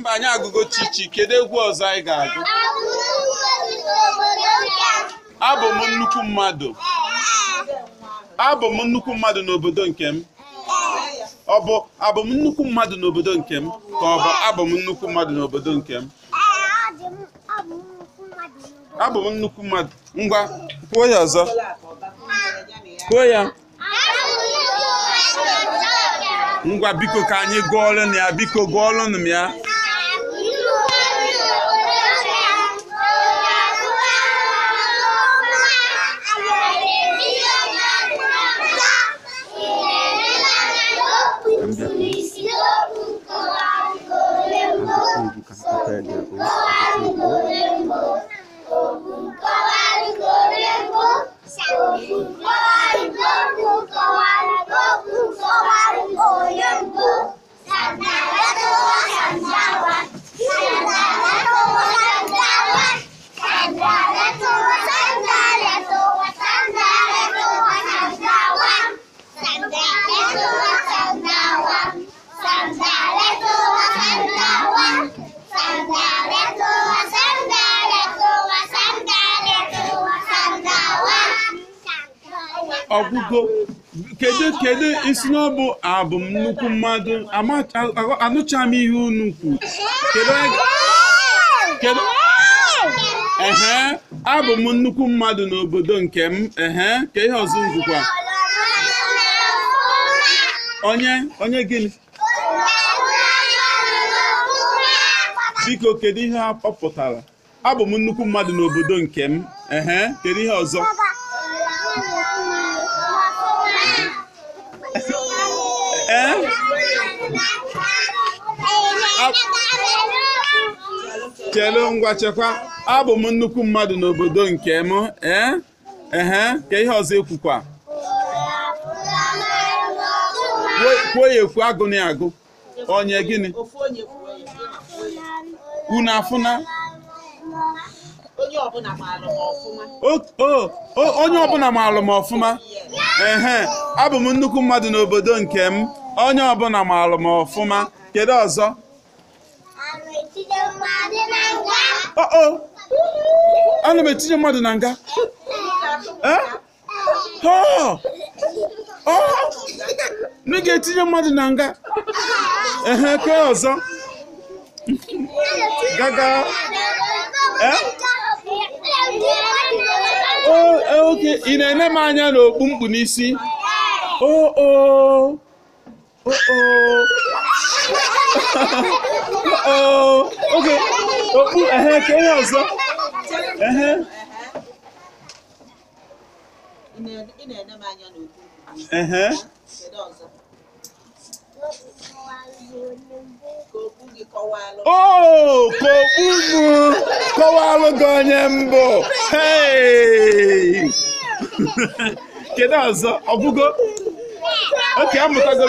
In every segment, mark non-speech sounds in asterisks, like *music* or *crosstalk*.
Mba, anyị agụgo Chichi, kedu egwu ọzọ anyị ga-agụ? Abụ m nnukwu mmadụ. Abụ m nnukwu mmadụ n'obodo nke m. Ọ bụ abụ m nnukwu mmadụ n'obodo nke m ka ọ bụ abụ m nnukwu mmadụ n'obodo nke m? Abụ m nnukwu mmadụ. Ngwa, kwuo ya ọzọ. Kwuo ya. Ngwa biko ka anyị gụọ gụọlụ ya, biko gụọlụnụ m ya. third now, ọgwụgwọ kedu kedu isi na ọ abụ m nnukwu mmadụ anụcha m ihe unu kwu kedu ehe abụ m nnukwu mmadụ n'obodo nke m ehe ka ihe ọzọ ngwụkwa onye onye gịnị biko kedu ihe ha kpọpụtara abụ m nnukwu mmadụ n'obodo nke m ehe kedu ihe ọzọ chelu ngwa chekwa abụ m nnukwu mmadụ n'obodo nke m e? ehe ka ihe ọzọ ekwukwa kwuo ya ekwu agụnị agụ onye gịnị unu afụna onye ọbụla ma alụ m ọfụma ehe abụ m nnukwu mmadụ n'obodo nke m onye ọbụla maalụ m ọfụma kedu ọzọ ana m etinye mmadụ na nga nne ga-etinye mmadụ na nga ehe ke ọzọ gaga e, oke ị na-ene m anya n'okpu mkpu n'isi oo Uh-huh. Uh-huh. Uh-huh. oh oh oge okpu ehe ehe okpu mụ kọwalụ gị onye mbụ kedu ọzọ oke amụtago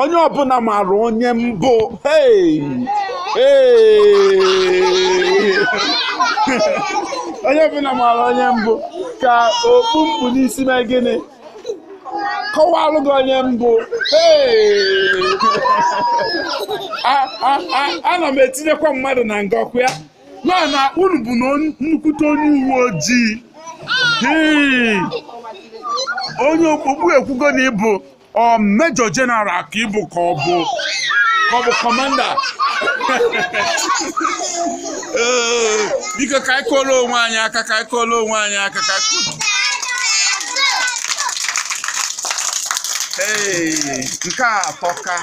onye ọbụla maara onye mbụ onye ọbụla maara onye mbụ ka okpu mkpu n'isi mee gịnị kọwalụ gị onye mbụ a ana m etinyekwa mmadụ na ngọkwa ya nọ na unu bụ na nnukwute onye uwe ojii onye okpukpu ekwugo na ịbụ ọ mejọ jenaral ka ịbụ ka ọ bụ ka ọ bụ kọmanda *laughs* biko ka anyị onwe anyị aka ka onwe anyị aka ka nke a atọka